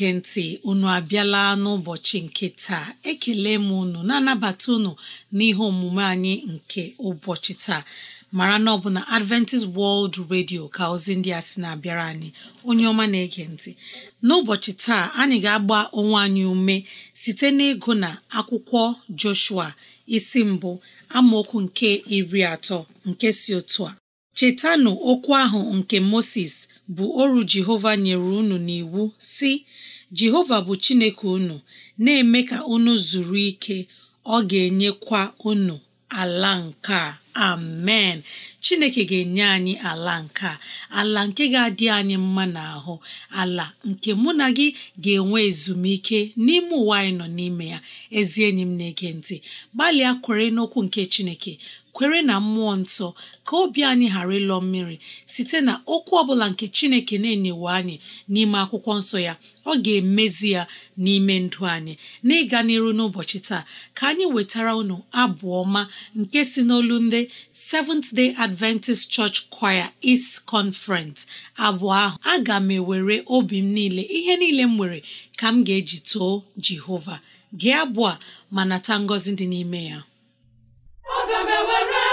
na-ege ntị unu abịala n'ụbọchị nke taa ekele m unu na-anabata unu n'ihe omume anyị nke ụbọchị taa mara na ọ bụ na Adventist World Radio ka ozi ndị a sị na-abịara anyị onye ọma na-ege ntị n'ụbọchị taa anyị ga-agba onwe anyị ume site n'ịgụ na akwụkwọ Joshua isi mbụ amaokwu nke iri atọ nke si otu a chetanụ okwu ahụ nke Moses bụ oru Jehova nyere unu n'iwu si Jehova bụ Chineke unu na-eme ka unu zuru ike ọ ga-enyekwa unu ala nke a amen Chineke ga-enye anyị ala nke a ala nke ga-adị anyị mma n'ahụ ala nke mụ na gị ga-enwe ezumike n'ime ụwa anyị nọ n'ime ya ezi enyi m na-ege ntị gbalịa kwere n'okwu nke Chineke kwere na mmụọ nsọ ka obi anyị ghara ịlọ mmiri site na okwu ọbụla nke chineke na-enyewe anyị n'ime akwụkwọ nsọ ya ọ ga-emezi ya n'ime ndụ anyị n'ịga n'iru n'ụbọchị taa ka anyị wetara unu abụ ọma nke si n'olu ndị Seventh Day Adventist Church Choir East Conference abụọ ahụ aga m ewere obi m niile ihe niile m nwere ka m ga-eji too Jehova gee abụọ ma nata ngọzi dị n'ime ya aga m ewere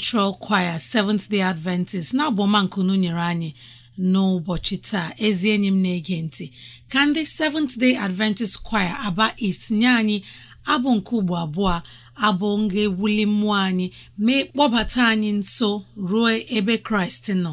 Central Choir Seventh Day Adventist na-abụ nyere anyị n'ụbọchị taa ezi enyi m na-ege ntị ka ndị Seventh Day Adventist Choir Aba East nye anyị abụ nke ugbo abụọ abụ nga ewuli mmụọ anyị mee kpọbata anyị nso ruo ebe Kraịst nọ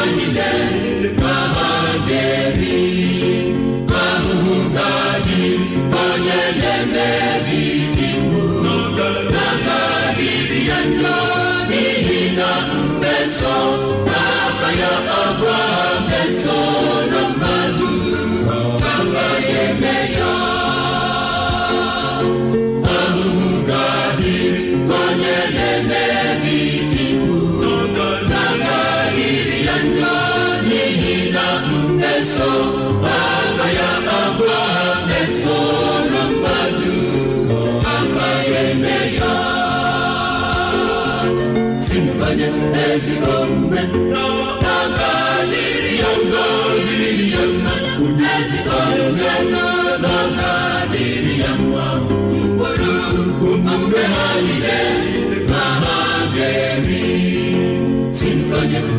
song.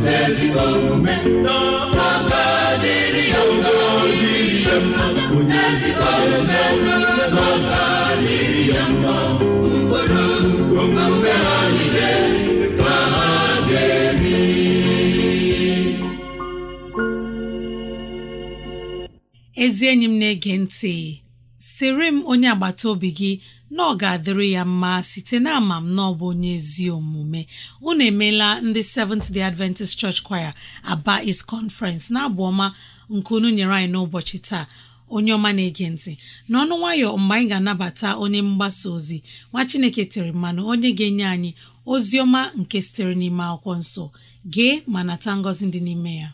n'ezi omume n'ọkpaka dịrị ya mma dịrị ya mma n'ezi omume n'ọkpaka dịrị ya mma mkpụrụ omume ha niile ka ga-eri ezi enyi m na-ege ntị sịrị m onye agbata obi gị na ọ ga-adịrị ya mma site na ama m na ọ bụ onye ezi omume unu emeela ndị Seventh Day Adventist Church Choir Aba is Conference na-abụ ọma nke unu nyere anyị n'ụbọchị taa onye ọma na-ege ntị n'ọnụ nwayọ mgbe anyị ga-anabata onye mgbasa ozi nwa Chineke tere mmanụ onye ga-enye anyị ozi ọma nke sitere n'ime akwụkwọ nsọ gee ma nata ngọzi dị n'ime ya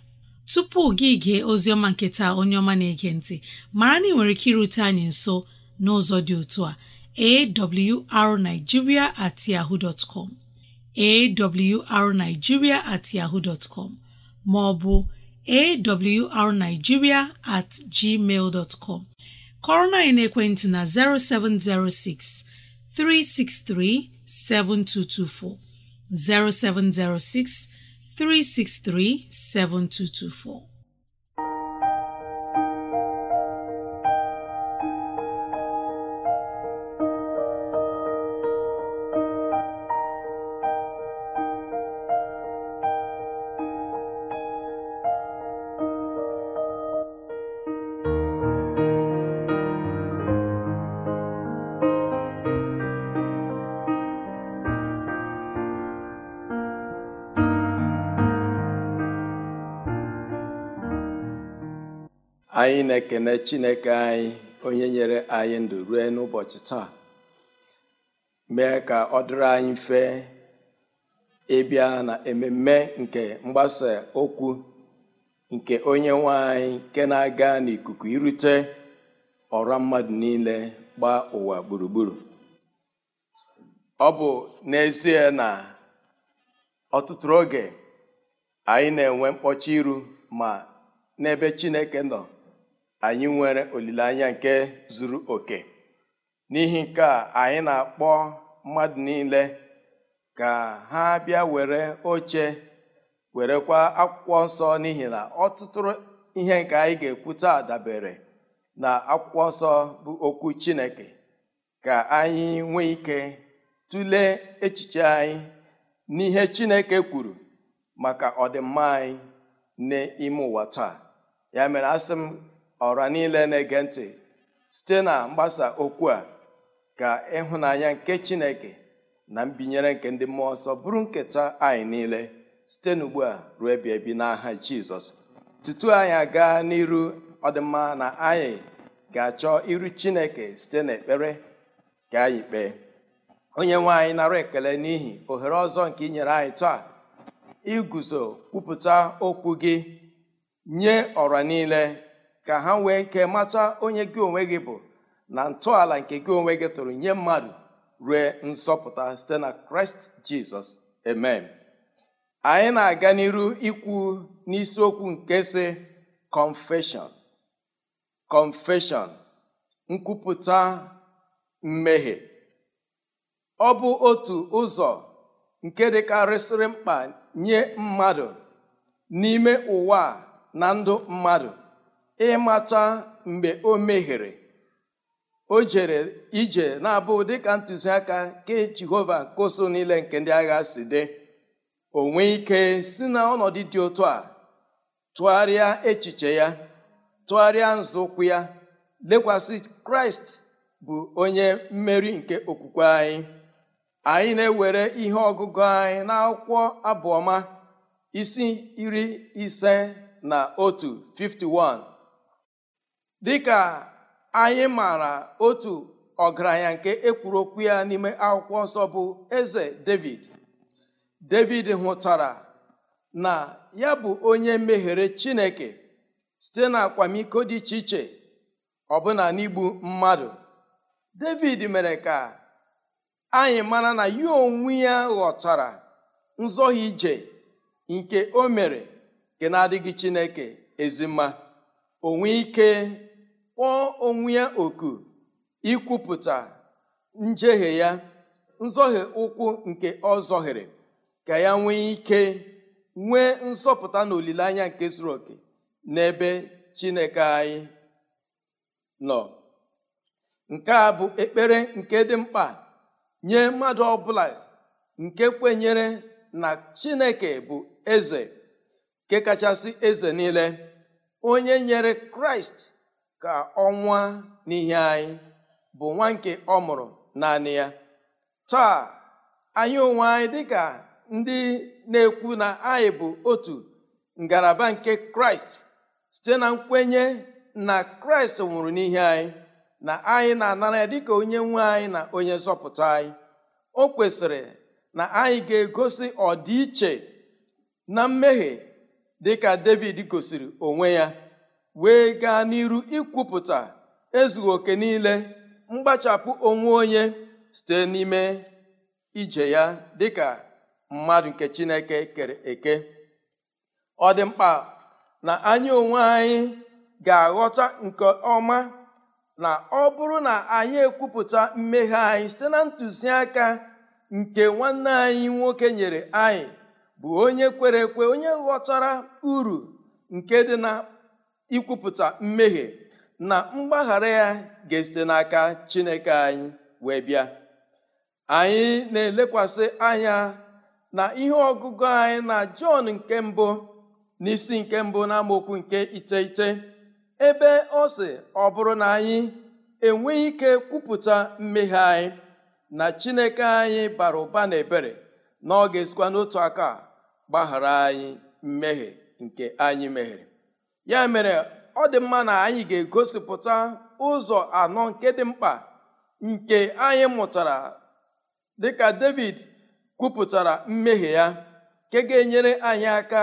tupu gị gee oziọma nke taa onye ọma na-ege ntị mara na ị nwere ike irute anyị nso n'ụzọ dị otu a awrnigeria at yahoo dot com awrnigeria at yahoo dot com ma ọ bụ awrnigeria at gmail dot com kọrọ na ekwentị na 0706 363 7224 0706 363 7224 anyị na-ekene chineke anyị onye nyere anyị ndụ rue n'ụbọchị taa mee ka ọ dịrị anyị mfe ịbịa na ememe nke mgbasa okwu nke onye nwe anyị nke na-aga n'ikuku irute ọrụ mmadụ niile gbaa ụwa gburugburu ọ bụ n'ezie na ọtụtụ oge anyị na-enwe mkpọchi iru ma n'ebe Chineke nọ anyị nwere olileanya nke zuru oke n'ihi nke a anyị na-akpọ mmadụ niile ka ha bịa were oche werekwa akwụkwọ nsọ n'ihi na ọtụtụ ihe nke anyị ga-ekwu taa dabere na akwụkwọ nsọ bụ okwu Chineke ka anyị nwee ike tụlee echiche anyị n'ihe Chineke kwuru maka ọdịmma anyị n'ime ụwa taa ya mere asị m ọra niile na-ege ntị site na mgbasa okwu a ka ịhụnanya nke chineke na mbinyere nke ndị mmụọ ọsọ bụrụ nketa anyị niile site n'ugbu a ruo ebi ebi n'aha jizọs tutu anyị aga n'iru ọdịmma na anyị ga-achọ iru chineke site n'ekpere ka anyị kpee onye nwe anyị nara ekele n'ihi ohere ọzọ nke ị nyere anyị taa iguzo kwupụta okwu gị nye ọra niile ka ha nwee nke mata onye gị onwe gị bụ na ntọala nke gị onwe gị tụrụ nye mmadụ rue nsọpụta, site na kraịst jizọs amen anyị na-aga n'iru ikwu n'isiokwu nke si confession kọnfeshọn nkwupụta mmehie ọ bụ otu ụzọ nke dịkarịsịrị mkpa nye mmadụ n'ime ụwa na ndụ mmadụ ịmata mgbe o mehiere o jere ije na-abụ dịka ntụziaka ke jehova nke niile nke ndị agha si dị onwe ike si na ọnọdụ dị otu a tụgharịa echiche ya tụgharịa nzọụkwụ ya lekwasị kraịst bụ onye mmeri nke okwukwe anyị anyị na-ewere ihe ọgụgụ anyị na akwụkwọ abụọma isi iri ise na otu 51 dịka anyị maara otu ọgaranya nke ekwuru okwu ya n'ime akwụkwọ nsọ bụ eze david david hụtara na ya bụ onye meghere chineke site na akwamiko dị iche iche ọbụna n'igbu mmadụ david mere ka anyị mara na ya onwe ya ghọtara nzọghị ije nke o mere nke na-adịghị chineke ezima onwe ike kpọọ onwe ya oku ikwupụta njehie ya nzọhie ụkwụ nke ọ zọhiri ka ya nwee ike nwee nzọpụta na olileanya nke zuru oke n'ebe chineke anyị nọ nke a bụ ekpere nke dị mkpa nye mmadụ ọbụla nke kwenyere na chineke bụ eze nke kachasị eze niile onye nyere kraịst ka ọnwa n'ihe anyị bụ nwa nke ọ mụrụ naanị ya taa anyị onwe anyị dịka ndị na-ekwu na anyị bụ otu ngalaba nke kraịst site na nkwenye na kraịst nwụrụ n'ihe anyị na anyị na-anara ya dịka onye nwe anyị na onye nzọpụta anyị o kwesịrị na anyị ga-egosi ọdịiche na mmehie dịka david gosiri onwe ya wee gaa n'iru ikwupụta ezughị oke niile mgbachapụ onwe onye site n'ime ije ya dịka mmadụ nke chineke kere eke ọ dị mkpa na anyị onwe anyị ga-aghọta nke ọma na ọ bụrụ na anyị ekwupụta mmeghe anyị site na ntụziaka nke nwanne anyị nwoke nyere anyị bụ onye kwere ekwe onye ghọtara uru nke dị na ikwupụta mmehie na mgbaghara ya ga-esite n'aka Chineke anyị wee bịa anyị na-elekwasị anya na ihe ọgụgụ anyị na Jọn nke mbụ na isi nke mbụ na nke iteghete ebe ọ sị ọ bụrụ na anyị enweghị ike kwupụta mmehie anyị na Chineke anyị bara ụba na ebere na ọ ga-esikwa n'otu aka gbaghara anyị mmehie nke anyị meghere ya mere ọ dị mma na anyị ga-egosipụta ụzọ anọ nke dị mkpa nke anyị mụtara dịka David kwupụtara mmehie ya nke ga-enyere anyị aka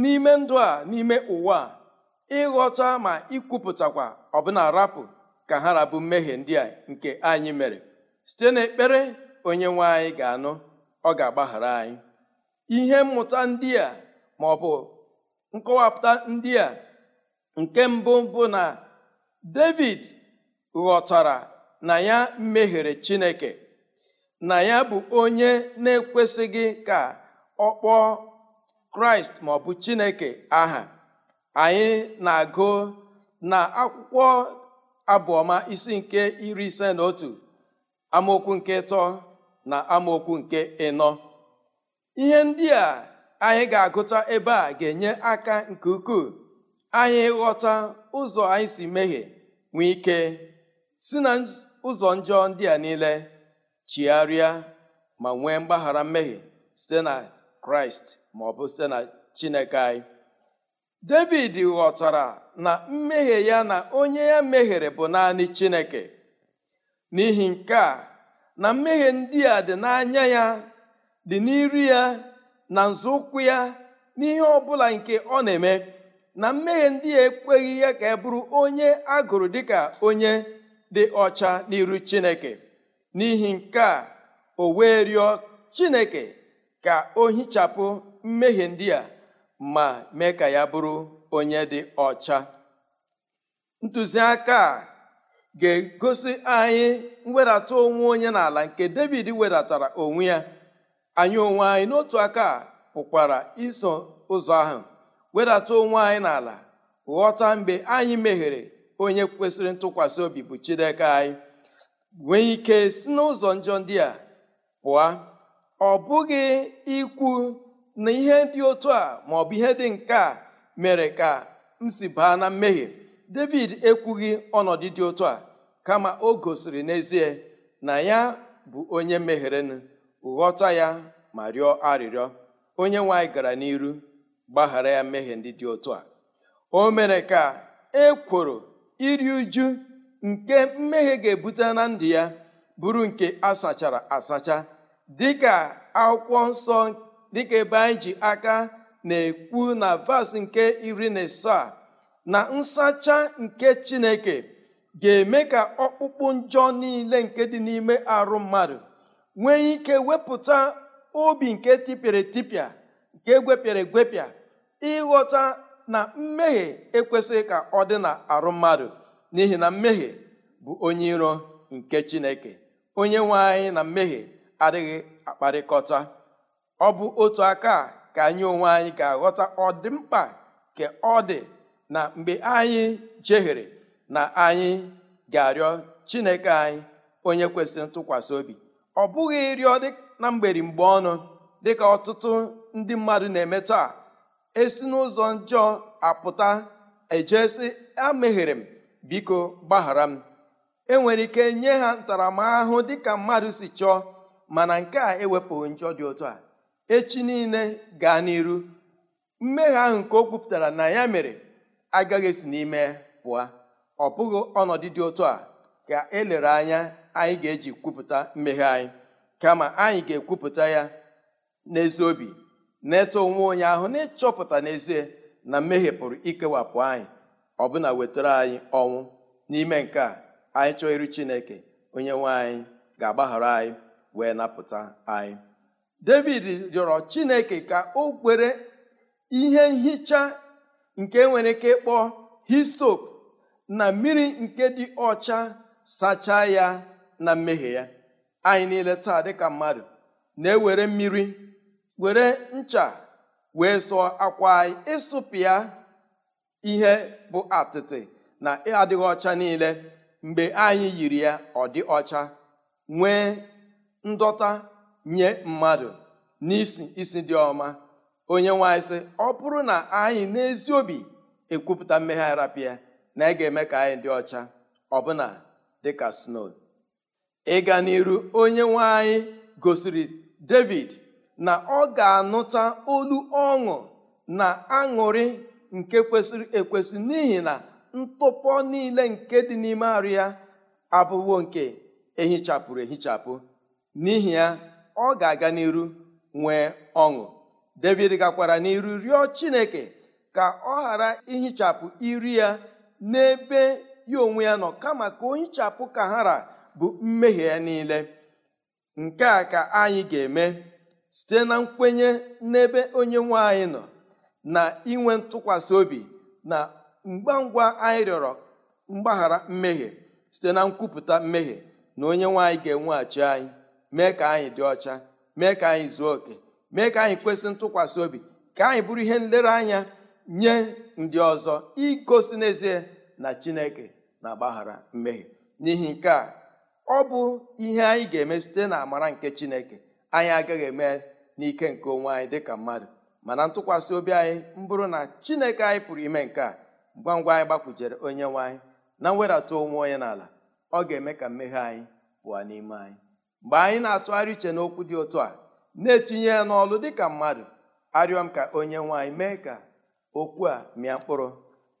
n'ime ndụ a n'ime ụwa ịghọta ma ikwupụtakwa ọbụna rapụ ka ha rabu mmehie ndị a nke anyị mere site n'ekpere onye nwe anyị ga-anụ ọ ga-agbaghara anyị ihe mmụta ndị a ma ọ bụ nkọwapụta ndị a nke mbụ bụ na David ghọtara na ya mehiere Chineke na ya bụ onye na-ekwesịghị ka ọ kpọọ Kraịst maọbụ Chineke aha anyị na-agụ na akwụkwọ abụọma isi nke iri ise na otu amaokwu nke ịtọ na amaokwu nke ịnọ ihe ndị a anyị ga-agụta ebe a ga-enye aka nke ukwuu anyị ghọta ụzọ anyị si mehie nwee ike si na ụzọ njọ ndị a niile chigharịa ma nwee mgbaghara mmehie site na kraịst ma ọ bụ site na chineke anyị david ghọtara na mmehie ya na onye ya mehiere bụ naanị chineke n'ihi nke a na mmehie ndị a dị n'anya ya dị n'iru ya na nzọụkwụ ya n'ihe ọ bụla nke ọ na-eme na mmehie ndị ya ekweghị ya ka e bụrụ onye a gụrụ dịka onye dị ọcha n'iru chineke n'ihi nke a o wee rịọ chineke ka o hichapụ mmehie ndị a ma mee ka ya bụrụ onye dị ọcha ntụziaka a ga-egosi anyị mwedata onwe onye n'ala nke david wedatara onwe ya anyị onwe anyị n'otu aka pụkwara iso ụzọ ahụ wedata onwe anyị n'ala ghọta mgbe anyị meghere onye kwesịrị ntụkwasị obi bụ Chineke anyị nwee ike si n'ụzọ njọ ndị a pụọ ọ bụghị ikwu na ihe dị otu a ma bụ ihe dị nke a mere ka m si baa na mmehie David ekwughị ọnọdụ dị otu a kama o gosiri n'ezie na ya bụ onye mehirenụ ghọta ya ma rịọ arịrịọ onye nwe anyị gara n'iru gbaghara ya mmehie ndị dị otu a o mere ka e kwuru iri uju nke mmehie ga-ebute na ndụ ya bụrụ nke asachara asacha dịka akwụkwọ nsọ dịka ebe anyị ji aka na-ekwu na vas nke iri na asaa na nsacha nke chineke ga-eme ka ọkpụkpụ njọ niile nke dị n'ime arụ mmadụ nwee ike wepụta obi nke tipịara etipịa nke gwepịara egwepịa ịghọta na mmehie ekwesịghị ka ọ dị na arụ mmadụ n'ihi na mmehie bụ onye iro nke chineke onye nwe anyị na mmehie adịghị akparịkọta ọ bụ otu aka ka anyị onwe anyị ga-aghọta ọdịmkpa ka ọ dị na mgbe anyị jehiere na anyị ga-arịọ chineke anyị onye kwesịrị ntụkwasị obi ọ bụghị ịrịọ na mgberi mgbe ọnụ dịka ọtụtụ ndị mmadụ na-eme taa esi n'ụzọ njọ apụta ejesi ameghere m biko gbaghara m enwere ike nye ha ntaramahụhụ dịka mmadụ si chọọ mana nke a ewepụghị njọ dị otu a echi niile gaa n'iru mmehie ahụ nke o kwupụtara na ya mere agaghị esi n'ime pụọ ọ bụghị ọnọdụ dị otu a ka elere anya anyị ga-eji kwupụta mmeghe anyị kama anyị ga-ekwupụta ya n'ezi obi na-eto onwe onye ahụ na-ịchọpụta n'ezie na mmehie pụrụ ikewapụ anyị ọ ọbụna wetara anyị ọnwụ n'ime nke a anyị chọọ iri chineke onye nwe anyị ga-agbaghara anyị wee napụta anyị david rịọrọ chineke ka o kwere ihe nhicha nke nwere ike ịkpọ histop na mmiri nke dị ọcha sachaa ya na mmehie ya anyị niile taa dịka mmadụ na-ewere mmiri were ncha wee sụọ akwa anyị ịsụpịa ihe bụ atịtị na adịghị ọcha niile mgbe anyị yiri ya ọ dị ọcha nwee ndọta nye mmadụ n'isi isi dị ọma onye nwanyị sị ọ bụrụ na anyị n'ezi obi ekwupụta mmegharapịa na ị ga-eme ka anyị dị ọcha ọbụna dịka snow ịga n'iru onye nwe anyị gosiri david na ọ ga-anụta olu ọṅụ na aṅụrị nke kwesịrị ekwesị n'ihi na ntụpọ niile nke dị n'ime arụ ya abụwo nke ehichapụrụ ehichapụ n'ihi ya ọ ga-aga n'iru nwee ọṅụ david gakwara n'iru rịọ chineke ka ọ ghara ihichapụ iri ya n'ebe ya onwe ya nọ kama ka o hichapụ ka hara bụ mmehie ya niile nke a ka anyị ga-eme site na nkwenye n'ebe onye nwanyị nọ na inwe ntụkwasị obi na ngwa ngwa anyị rịọrọ mgbaghara mmehie site na nkwupụta mmehie na onye nwanyị ga-enweghachi anyị mee ka anyị dị ọcha mee ka anyị zuo oke mee ka anyị kwesị ntụkwasị obi ka anyị bụrụ ihe nlereanya nye ndị ọzọ igosi n'ezie na chineke na-agbaghara mmehie n'ihi nke a ọ bụ ihe anyị ga-eme site na amara nke chineke anyị agaghị eme n'ike nke onwe anyị dịka mmadụ mana ntụkwasị obi anyị mbụrụ na chineke anyị pụrụ ime nke a ngwa ngwa anyị gbakwujere onye nwe anyị na mwedata onwe onye n'ala ọ ga-eme ka mmehie anyị pụọ n'ime anyị mgbe anyị na-atụgharị uche n'okwu dị otu a na-etinye ya n'ọlụ dịka mmadụ arịọ m ka onye nwe anyị mee ka okwu a mịa mkpụrụ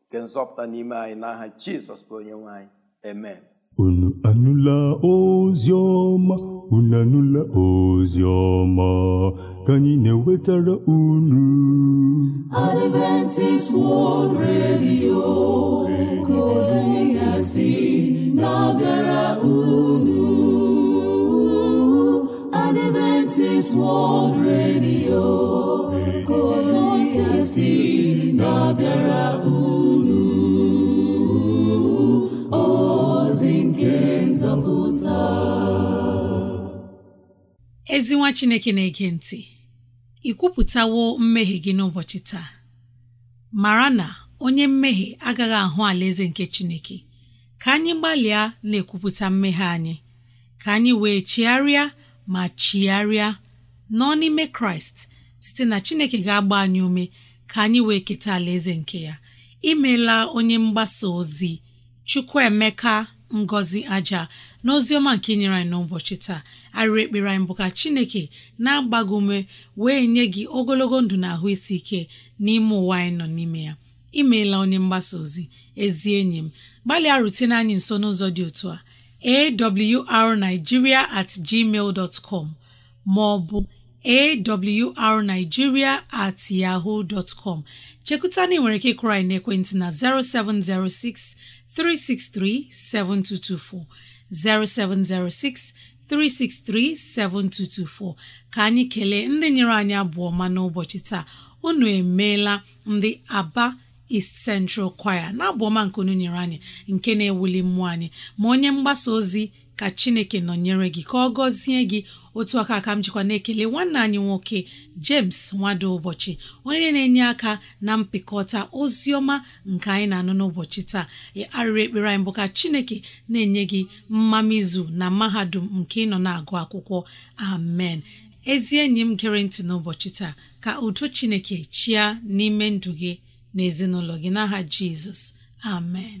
nke nzọpụta n'ime anyị n'aha aha jizọs bụ onye nwe anyị unu anụla ozi ọma unu anụla ozi ọma ka na-ewetara unu Adventist World Radio ka ozi si na-abịara unu Adventist World Radio ka ozi si na-abịara unu ezi chineke na-ege ntị ị kwupụtawo mmehie gị n'ụbọchị taa mara na onye mmehie agaghị ahụ alaeze nke chineke ka anyị gbalịa na-ekwupụta mmehie anyị ka anyị wee chigharịa ma chigharịa nọ n'ime kraịst site na chineke ga-agba anyị ume ka anyị wee keta alaeze nke ya imeela onye mgbasa ozi chukwuemeka ngozi aja n'oziọma nke inyere anyị n'ụbọchị taa arịrị ekpere anyị bụ ka chineke na-agba ume wee nye gị ogologo ndụ na ahụ isi ike n'ime ụwa anyị nọ n'ime ya imeela onye mgbasa ozi ezi enyi m gbalịa rutene anyị nso n'ụzọ dị otu a awrnigeria at gmail dot com ma ọ bụ awrnigeria at yahoo dot com chekụta na ị nwere ike ịkụrọ anyị n'ekwentị na 0706 363-7224, 0706 363-7224 ka anyị kelee ndị nyere anyị abụọ ma n'ụbọchị taa unu emeela ndị Aba East Central Choir na abụọma nke unu nyere anyị nke na-ewuli mmụọ anyị ma onye mgbasa ozi ka chineke nọnyere gị ka ọ gọzie gị otu aka aka m jikwa na-ekele nwanne anyị nwoke James nwado ụbọchị onye na-enye aka na mpịkọta ozi ọma nke anyị na-anụ n'ụbọchị taa arịrị ekpere anyị bụ ka chineke na-enye gị mmamizu na mahadum nke ịnọ na-agụ akwụkwọ amen ezi enyi m gere ntị n'ụbọchị taa ka udo chineke chia n'ime ndụ gị na gị n'aha Jizọs amen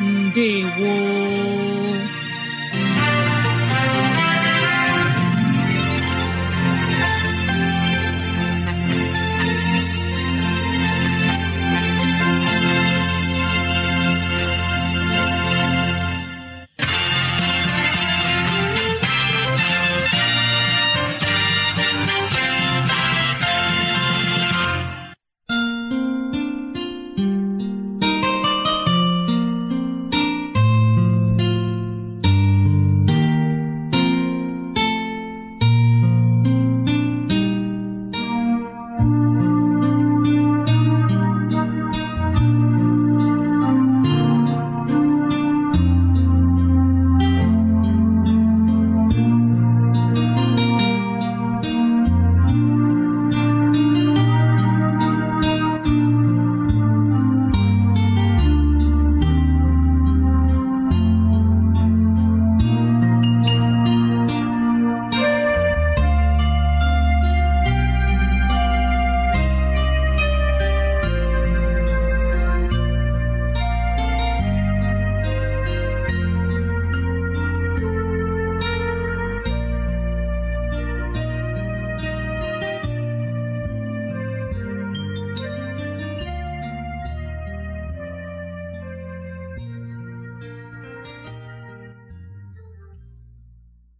ndewo